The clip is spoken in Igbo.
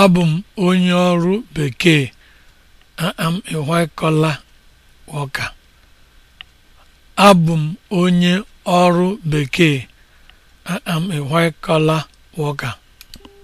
Abụ m onye ọrụ bekee. I am a white am a white collar worker.